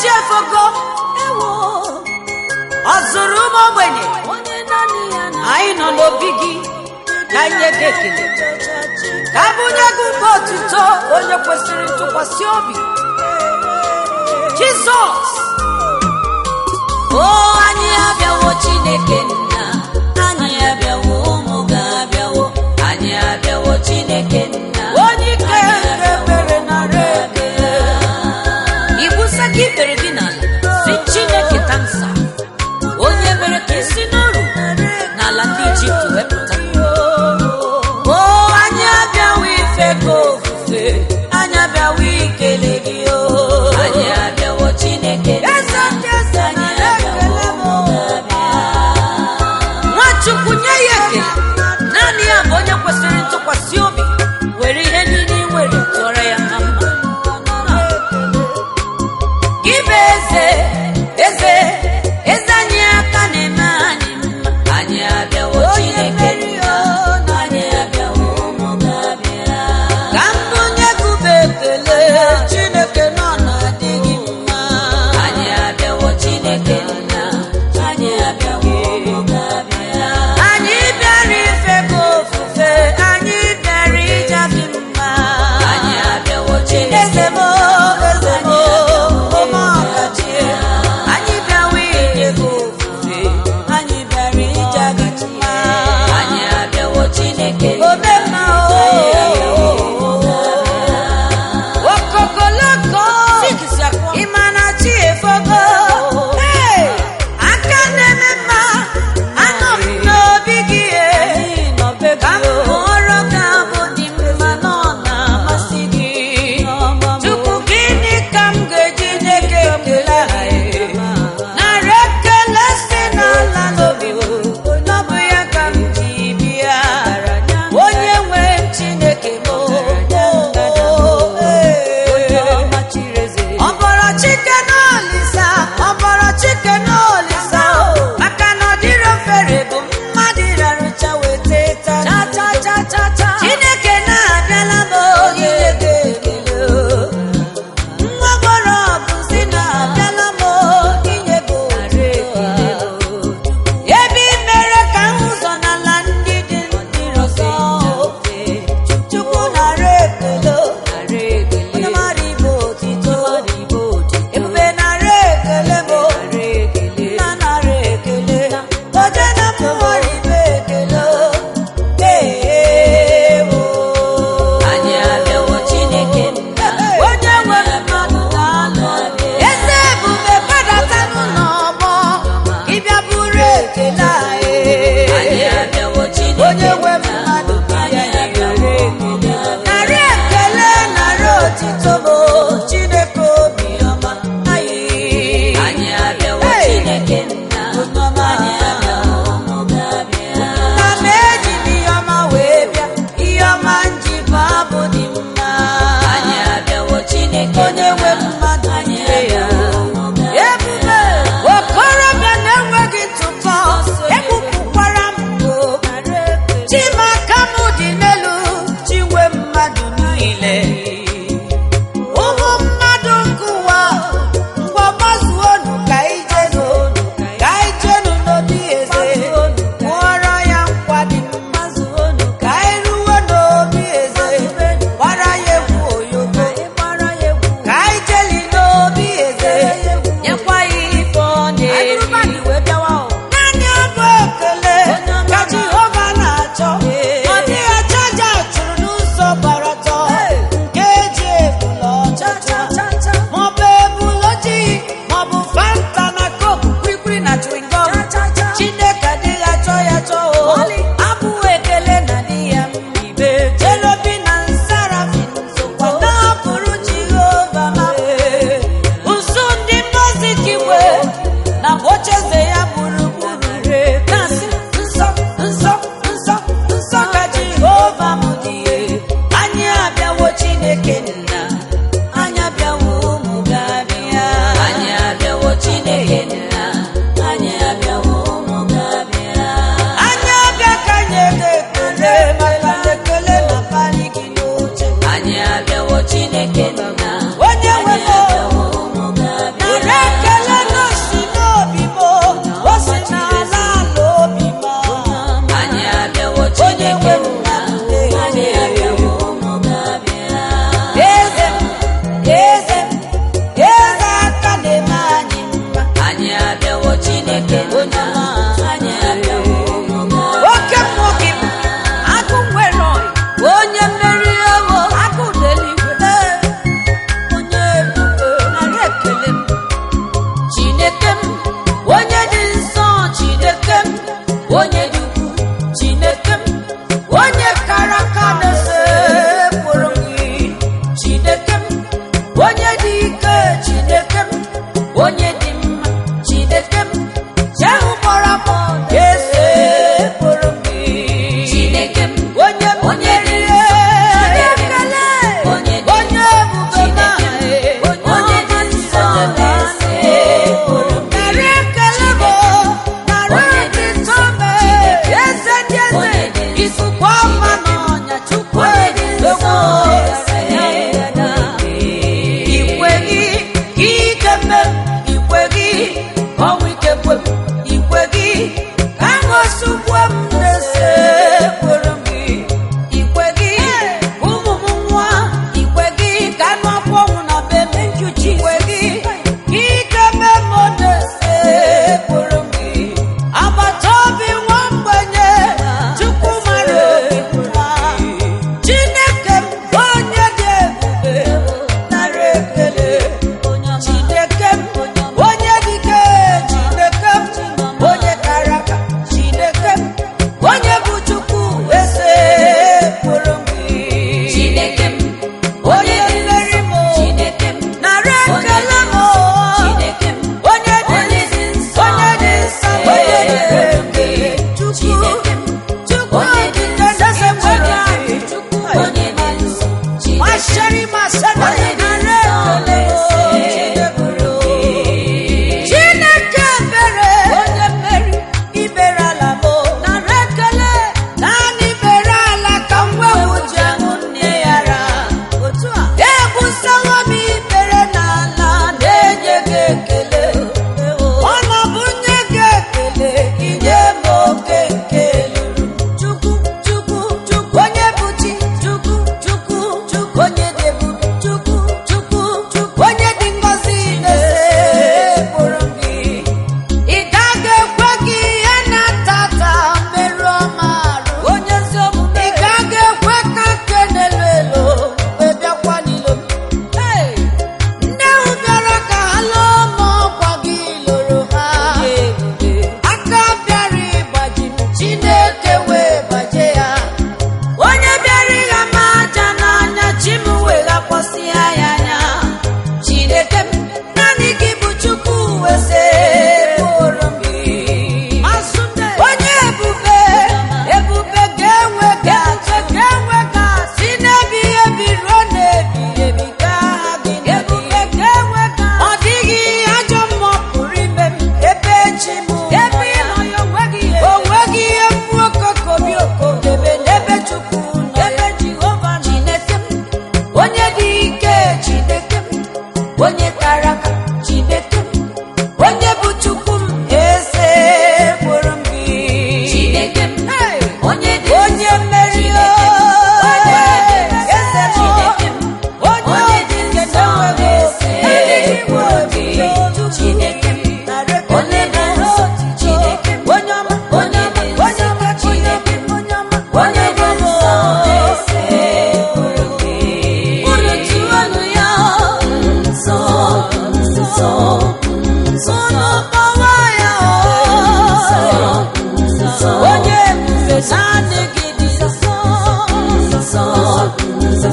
chi efogo ewo ọ zụrụ ụmụ ogbenye anyị nọ n'obi gị ka nye gị ekele ka abụnye gị mba otuto onye kwesịrị ntụkwasị obi jizọs o anyị abịawo chineke nna anyị abịawo ụmụ ga abịawo anyị abịawo chineke nna making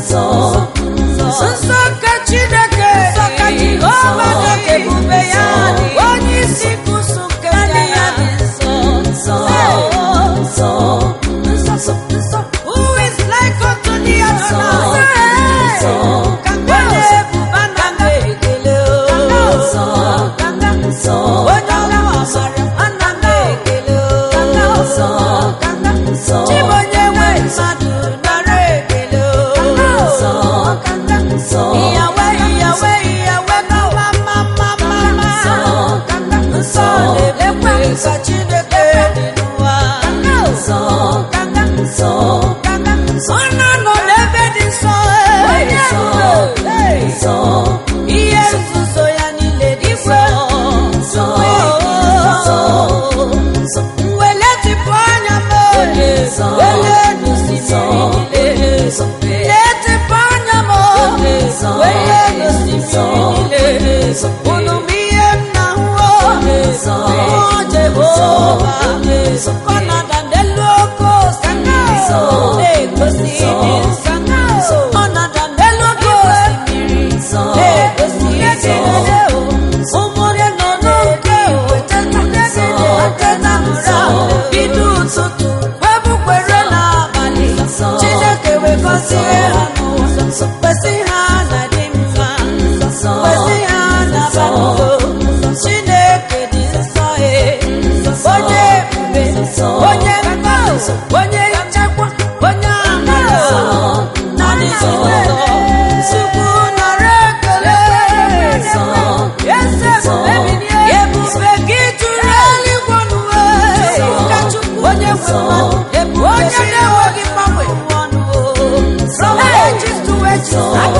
ọzọ unu bụ ihe nna nwuo o Jehova nsọ onye na-enweghị mgbanwe ọnụ o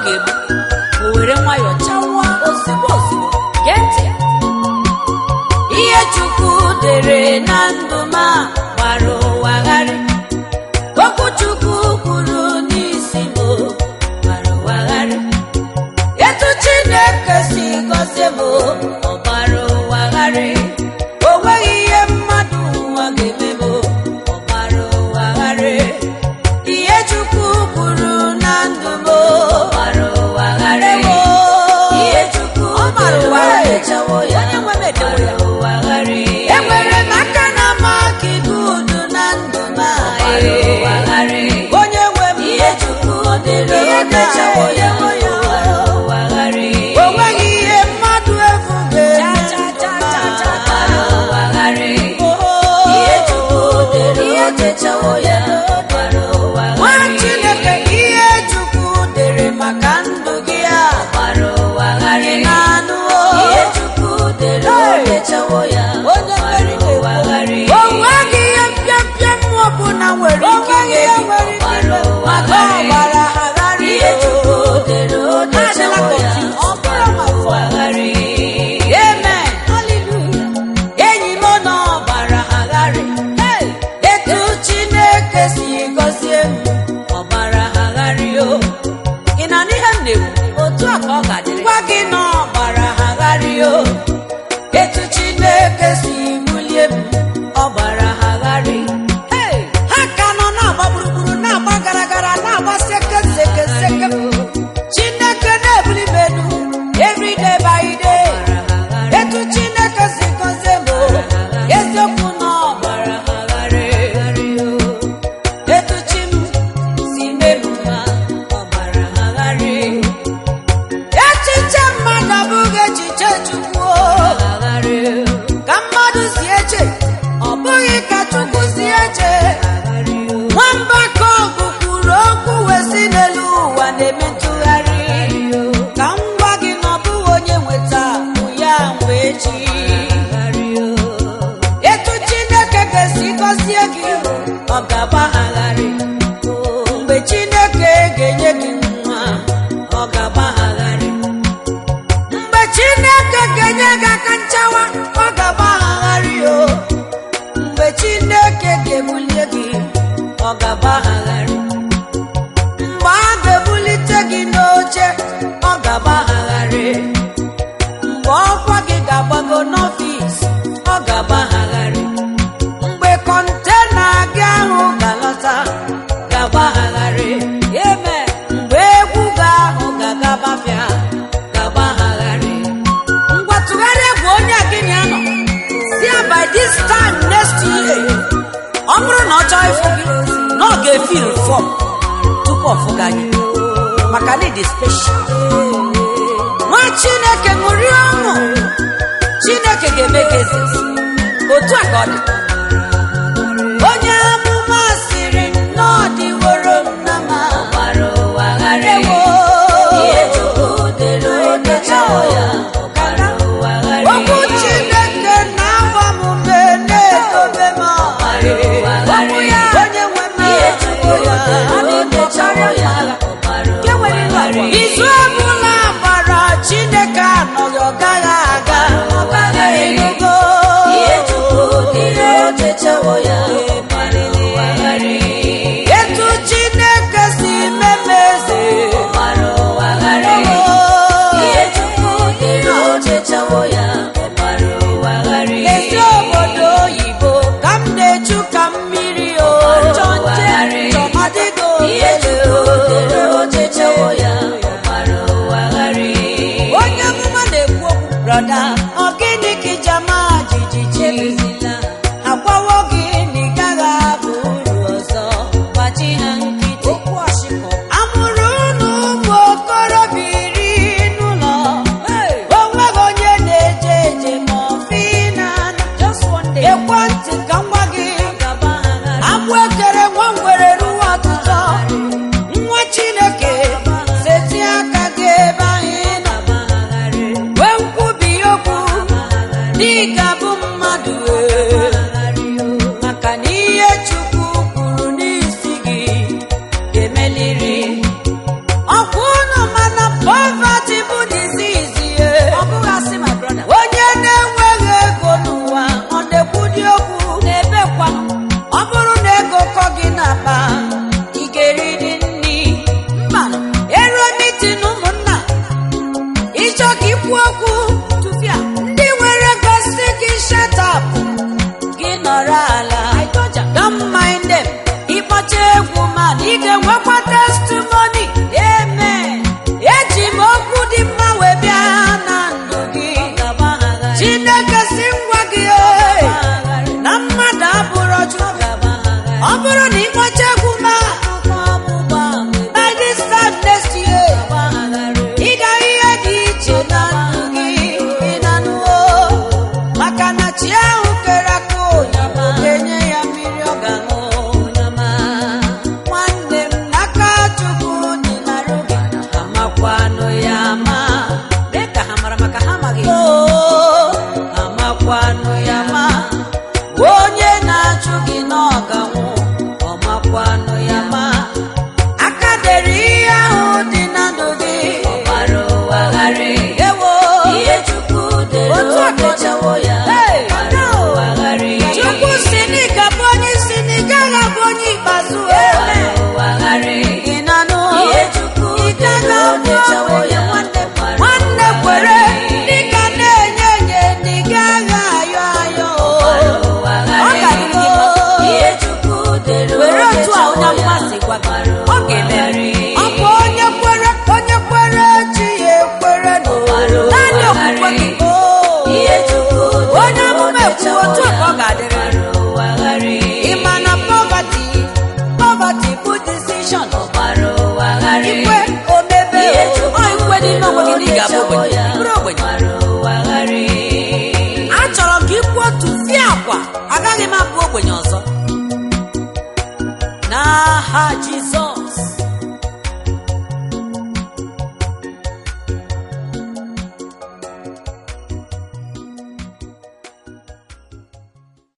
o were nwayọọ chawa ozigbo ozigbo gee a ihe Chukwu dere na ndụ ma gbara ụwa gharị I've got you. ga-ebulie gị ọ gabagharị mgbe a ga-ebulite gị n'oche ọ gabagharị mgbe ọkwa gị ga-agbago ga feel fọm tupu ọfụga gị maka na ịdị special nwa chineke ṅụrie ọṅụ chineke ga-eme gị otu a ka ọ dị ọ gaghị aga egogo ihe tupu ihe oji echewo ya